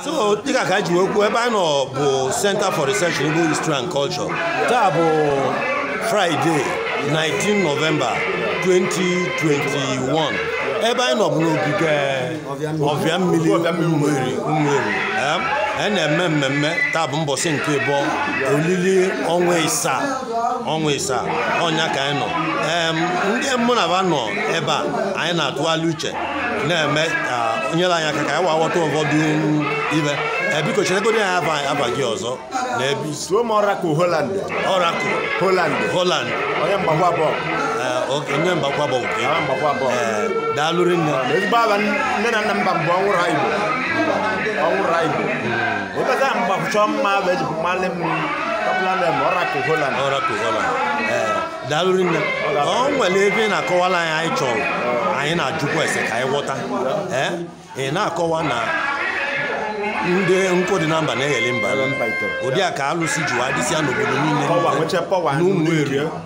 so dịka ka ji nwekwuo ebe a nọ bụ Center for Research in Igbo History and Culture taa bụ Friday 19 Novemba 2021 ebe anyị nọ bụ n'ogige ọbịa mmiri mmiri e na-eme mmemme taa bụ mbọsị nke bụ olili ọnwa ịsaa ọnwa ịsaa ọnya ka anyị nọ ndị mụ na aba nọ ebe a anyị na-atụgharị uche na-eme ka nyere anyị aka ka anyị wa ghọta ụfọdụ ibe biko chetegodi ya afa gị ọzọ na ebe ọrakụ holand ọrakụ holand Holland onye mgbakwa bọọlụ eh, onye mgbakwa ah, mgbakwa eh, daalụ ah, ezigbo aba nne na nna mba mbụ ọnwụrụ ha Igbo ọnwụrụ ha Igbo mma bụ mmalị m daalụ ọ nwere na-akọwala anyị anyị anyị na-ajụkwa ese ka anyị ghọta eh, ị na-akọwa na akọwa ndị nkụ dị na mba na eghele mba ụdị a ka alụsị jiwa dịsịa n'obodo niile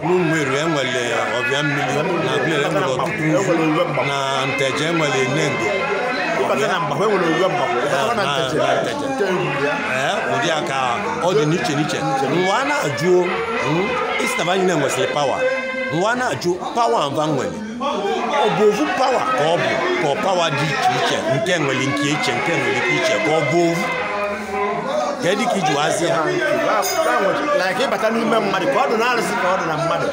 n'Ụmụeri enwere ọbịa mmiri na Abịa enwere ọtụtụ na Nteje enwere Enengo ụdị a ka ọ dị n'iche n'iche nwa na-ajụ mba nwere ọ bụ ovu pawa ka ọ bụ ka pawa dị iche iche nke nwere nke iche nke nwere ike iche ka ọ bụ ovu kedu ka iji wazi ha ịbata n'ime mmadụ ka ọ dụ na arụsị ka ọ dụ na mmadụ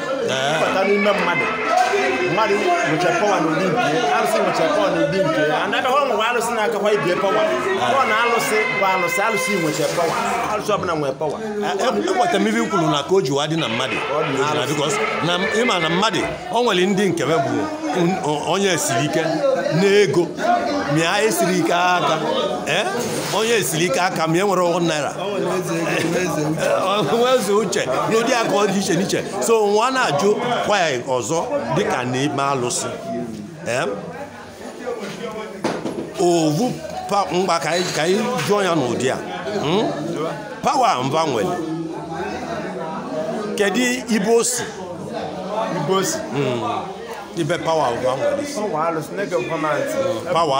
ịbata n'ime mmadụ mmadụ nwechara pọwa nke arụsị pọwa ụdị nke ya na ọrụ nwe arụsị na-akakwa ịbịa pọwa pọwa na alụsị bụ pọwa ọbụla nwere pọwa ekweta e, e ibe kwuru na ka o jiwa dị na mmadụ ịma na mmadụ o nwere ndị nke bụ onye siri ike na ego mịa esiri ike aka Eh? onye esiri ike aka m e nwere ọgwụ naira nweze uche n'ụdị aka ọ dị iche n'iche so nwa na-ajụ kwa ya ọzọ dịka n'ime alụsị eh? ovu mgba ka anyị jụọ ya n'ụdị a pawa mba nwere kedu ibe o si ibe hmm. pawa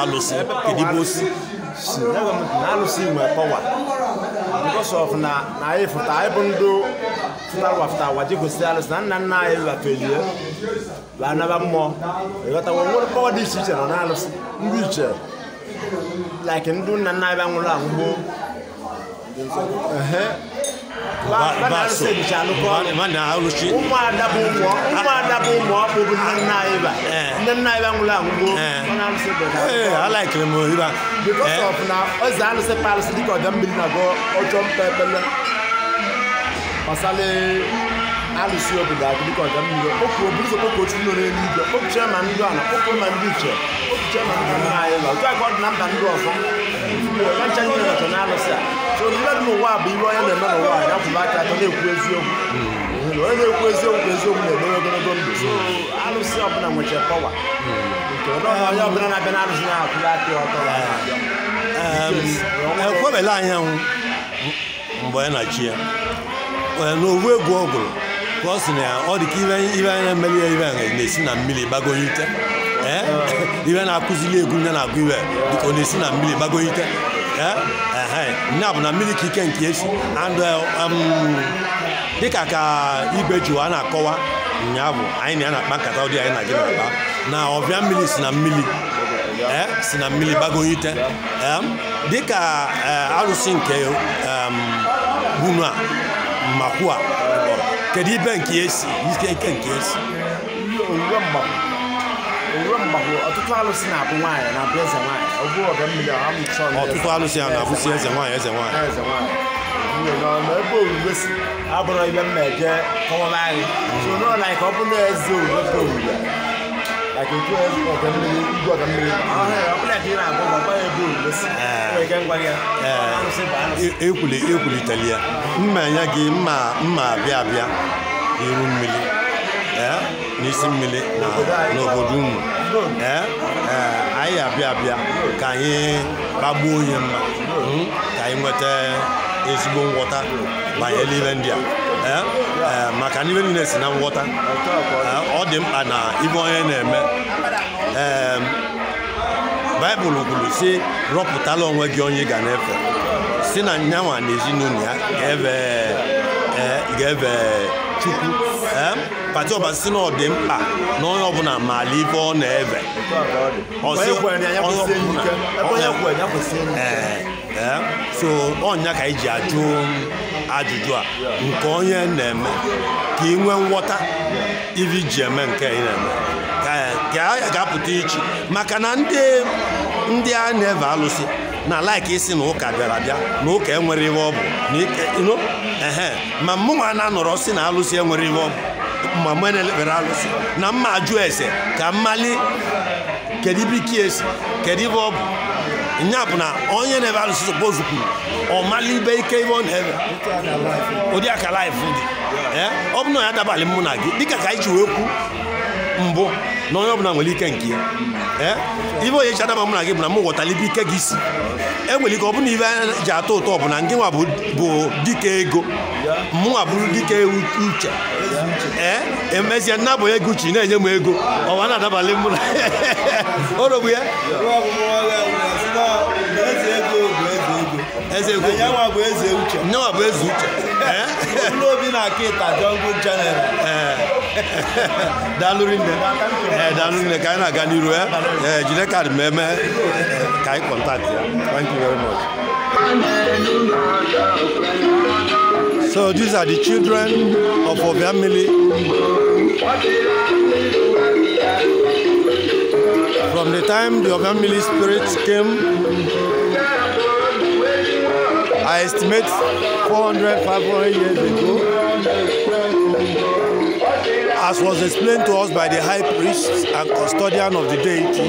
alụsị kedu ibe o si si na alụsị igwe kpọwa because na bụ ndị fụtara ụwa fụta gosiri alụsị na nna nna anyị lafelie la anaba mmụọ nwere dị iche iche nọ na alụsị ndụ iche like ndị nwụrụ anwụ gboo alụchi ụmụada bụ ụmụ ọkpụ bụ nne nna anyị e ba eh. nne nna anyị e ba nwụrụ anwụ gboo alaikere m ohiba because eh. na eze alụsị pa alụsị dịka ọdọ ndị ọna okpuchie ma ndị ndị nna anyị ba otu ndị ọzọ ncha ndị ọzọ so ndị bụ ihe onye na-eme n'ụwa ya atọ na-ekwu eziokwu onye na-ekwu eziokwu eziokwu na ogologo ndụ alụsị ọbụla nwechara pọwa nke onye ọbụla na-abịa na na aka ọtọ ekwebela e mgbe anyị na ya n'owu egwu ọ gụrụ ka ọ sị na ọ dị ka ibe anya emeli ya ibe anya na-esi na mmiri gbagonye ite ah. ibe na-akụzili egwu nne na-agụ ibe dịka ọ na-esi na mmiri gbagonye ite ya eh? bụ na mmiri ka ike nke esi eh, um, dịka ka igwe jiwa a na-akọwa ụnyaahụ anyị na ya na-akpa nkata ụdị anyị na gị na-akpa na ọbịa mmiri si na mmiri eh? si na mmiri gbago ite dịka arụsị nke um, bunu a makwu a kedu ibe nke esi ike nke esi ọtụtụ alụsị na-abụ nwaanyị na-abụ eze nwaanyị ọtụtụ mmiri a na-abụsi eze nwaanyị eze nwaanyị ebe orube si abụrụ ibe m na-eje kọwara anyị n'ụlọ anyị ka ọ eze ya mma anya gị mma abịa abịa iru mmiri n'isi mmiri na n'obodo unu anyị abịa abịa ka anyị gbagbuo onye mma hmm, ka anyị nweta ezigbo ngwọta banyere ile ndị a maka n'ibe niile si na nghọta ọ dị mkpa na ibe onye na-eme baịbụl kwuru si rọpụtala onwe gị onye ga na-efe si na nyanwa na ezinụlọ ya ga-efe chukwu pati ọbasi na ọ dị mkpa na onye ọbụla maala ife ọ na-eve eh, eh, so ọnya ka iji ajụ ajụjụ a nke onye na-eme ka ị nwee nghọta ivi ji eme nke ị na-eme ka ya ga-apụta ichi maka na ndị a na-eve alụsị na laiki isi na ụka bịara bịa na ụka enwere ihe ọ bụ ehe ma mụnwa na-anọrọ si na alụsị enwere ihe ọ bụ ma mụ na-elekpere alụsị na mma ajụ ese ka mmali kedu ibe ike esi kedu ibe ọ bụ nya bụ na onye na-ebe alụsị sopozu kwuru ọ mali ibe ike ibe ọ na-ebe ụdị aka laif dị ọ bụ na ya adabalị mụ na gị dịka ka anyị ji wee kwu mbụ na onye ọbụla nwere ike nke ya ibe onye ji adaba mụ na gị bụ na m ghọtara ike gị si enwere ike ọ na ibe anya ji atọ ụtọ bụ na ndị nwa bụ dike ego mmụọ bụrụ dike uche ee eh? emezie nna bụ uche na-enye m ego ọwa na-adabalị mụ na orogbu ya nyewa bụ eze uche ee eh? na ịta jọngụ dalori nɛ ɛ dalori na gani ro ɛ ɛ jinɛ ka mɛ contact thank you very much. so these are the children of oviamili from the time the oviamili spirit came. I estimate 400, 500 years ago. as was explained to us by the high priest and custodian of the deity,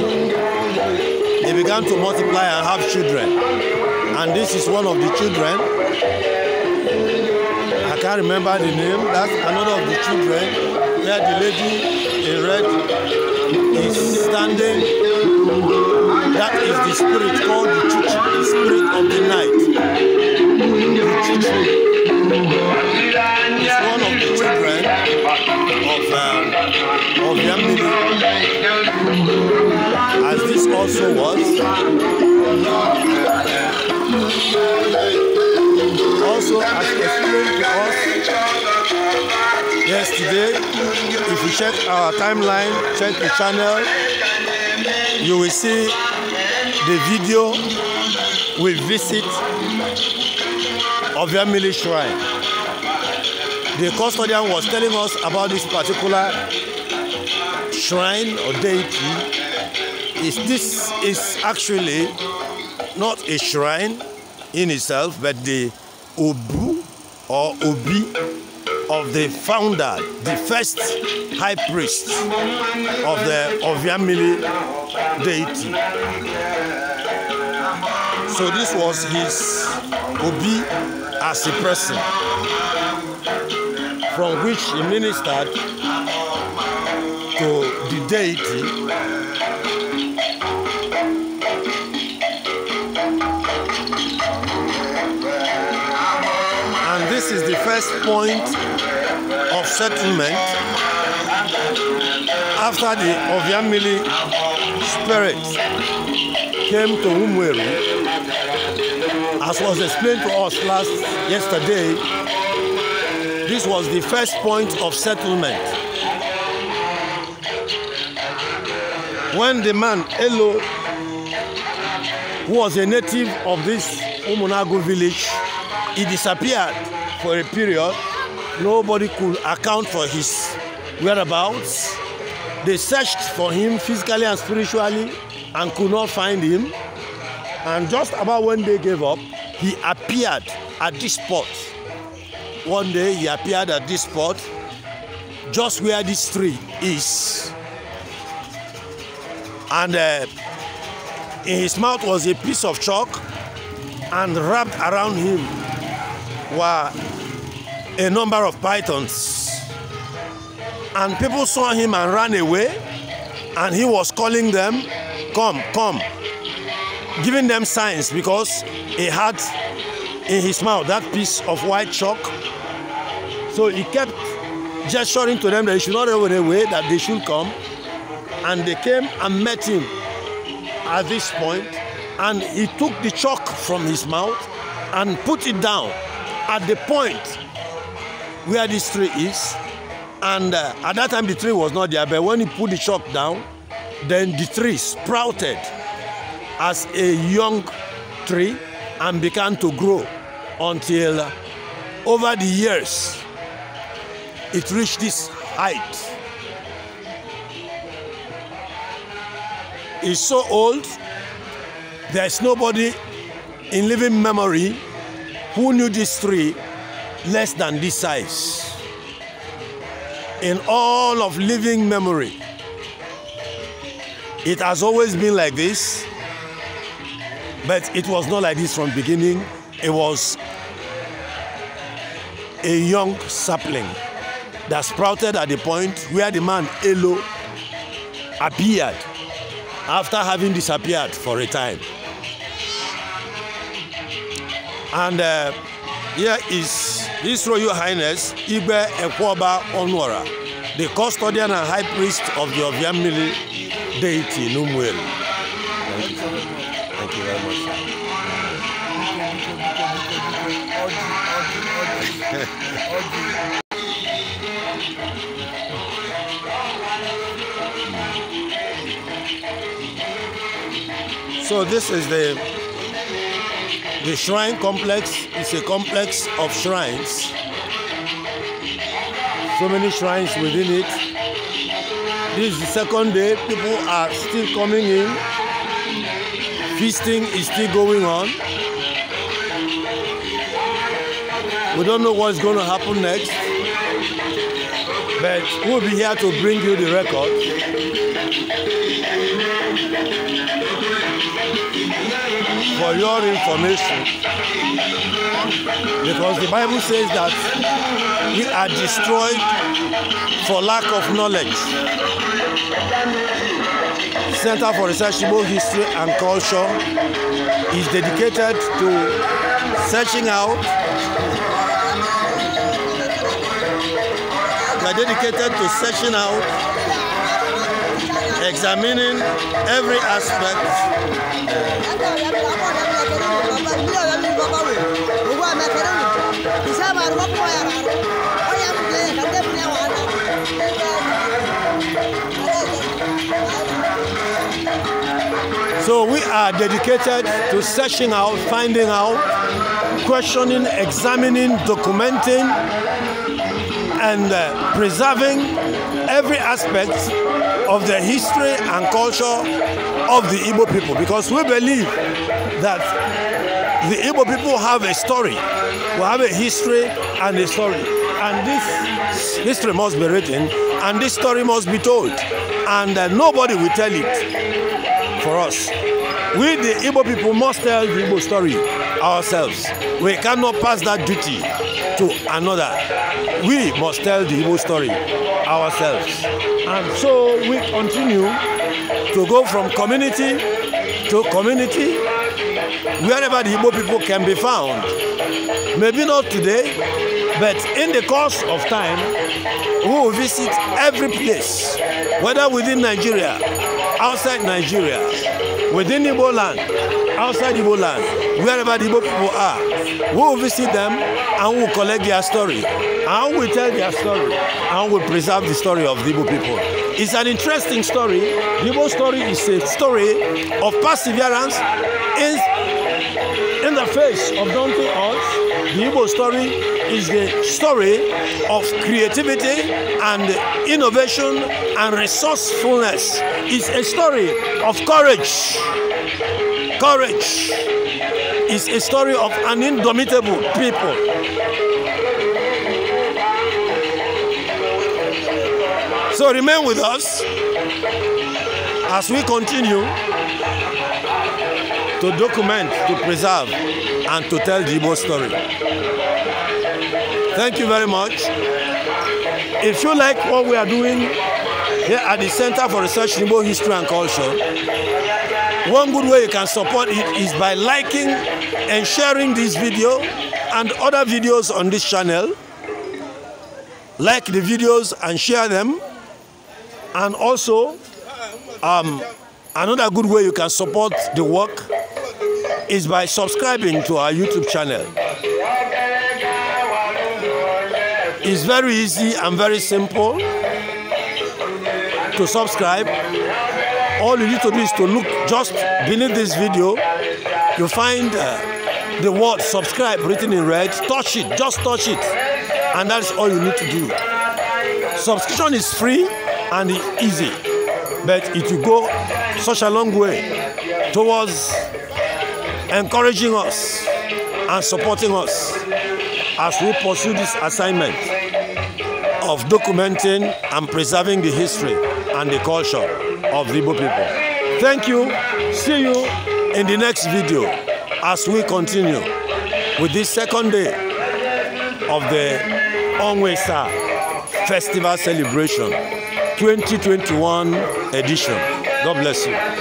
they began to multiply and have children. And this is one of the children. I can't remember the name. That's another of the children where the lady in red is standing that is the spirit called the Chuchu, the spirit of the night. The Chuchu is one of the children of, uh, of Yamini, as this also was. Also, as explained to us yesterday, if you check our timeline, check the channel, you will see the video we visit of Yamili Shrine. the custodian was telling us about this particular shrine or deity is this is actually not a shrine in itself but the obu or obi of the founder the first high priest of the oviamili deity so this was his obi as a person from which he ministered to the deity. And this is the first point of settlement after the Ovyamili spirit came to Umweru, as was explained to us last yesterday This was the first point of settlement. When the man, Elo, who was a native of this Umunagu village, he disappeared for a period. Nobody could account for his whereabouts. They searched for him physically and spiritually and could not find him. And just about when they gave up, he appeared at this spot one day he appeared at this spot, just where this tree is. And uh, in his mouth was a piece of chalk, and wrapped around him were a number of pythons. And people saw him and ran away, and he was calling them, Come, come, giving them signs because he had in his mouth that piece of white chalk So he kept gesturing to them that he should not run away, that they should come. And they came and met him at this point, and he took the chalk from his mouth and put it down at the point where this tree is. And uh, at that time, the tree was not there, but when he put the chalk down, then the tree sprouted as a young tree and began to grow until uh, over the years it reached this height. It's so old, there's nobody in living memory who knew this tree less than this size. In all of living memory, it has always been like this, but it was not like this from beginning. It was a young sapling. that sprouted at the point where the man Elo appeared after having disappeared for a time. And uh, here is His Royal Highness Ibe Ekwoba Onwara, the custodian and high priest of the Oviamili deity Numwel. Thank you. Thank you very much. Thank you. So this is the the shrine complex. It's a complex of shrines. So many shrines within it. This is the second day. People are still coming in. Feasting is still going on. We don't know what's going to happen next, but we'll be here to bring you the record. for your information because the bible says that we are destroyed for lack of knowledge center for researchable history and culture is dedicated to searching out we are dedicated to searching out examining every aspect So we are dedicated to searching out, finding out, questioning, examining, documenting, and uh, preserving every aspect of the history and culture of the Igbo people because we believe that the Igbo people have a story, we have a history and a story. And this history must be written and this story must be told. And uh, nobody will tell it for us. We, the Igbo people, must tell the Igbo story ourselves. We cannot pass that duty to another. We must tell the Igbo story ourselves. And so we continue to go from community to community, wherever the Igbo people can be found. Maybe not today, but in the course of time, we will visit every place, whether within Nigeria, outside Nigeria, within Igbo land, outside Igbo land, wherever the Igbo people are. We will visit them and we collect their story and we tell their story and we preserve the story of the Igbo people. It's an interesting story. The Igbo story is a story of perseverance in, in the face of daunting odds. The Igbo story is the story of creativity and innovation and resourcefulness. It's a story of courage. Courage is a story of an indomitable people. So remain with us as we continue to document, to preserve, and to tell the Igbo story. Thank you very much. If you like what we are doing here at the Center for Research in Igbo History and Culture, one good way you can support it is by liking and sharing this video and other videos on this channel. Like the videos and share them. And also, um, another good way you can support the work is by subscribing to our YouTube channel. It's very easy and very simple to subscribe. All you need to do is to look just beneath this video you find uh, the word subscribe written in red. Touch it, just touch it, and that's all you need to do. Subscription is free and easy, but it will go such a long way towards encouraging us and supporting us as we pursue this assignment of documenting and preserving the history and the culture of the Igbo people. Thank you. See you in the next video as we continue with this second day of the Onwe Festival Celebration 2021 edition. God bless you.